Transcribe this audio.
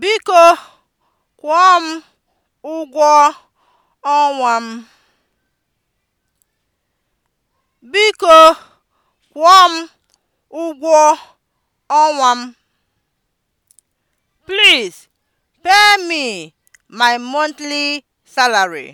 Biko kwụọ m ụgwọ ọnwa m. Biko kwụọ m. Please pay me my monthly salary.